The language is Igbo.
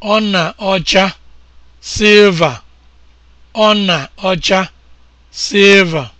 Ọ na ọna ọcha silva.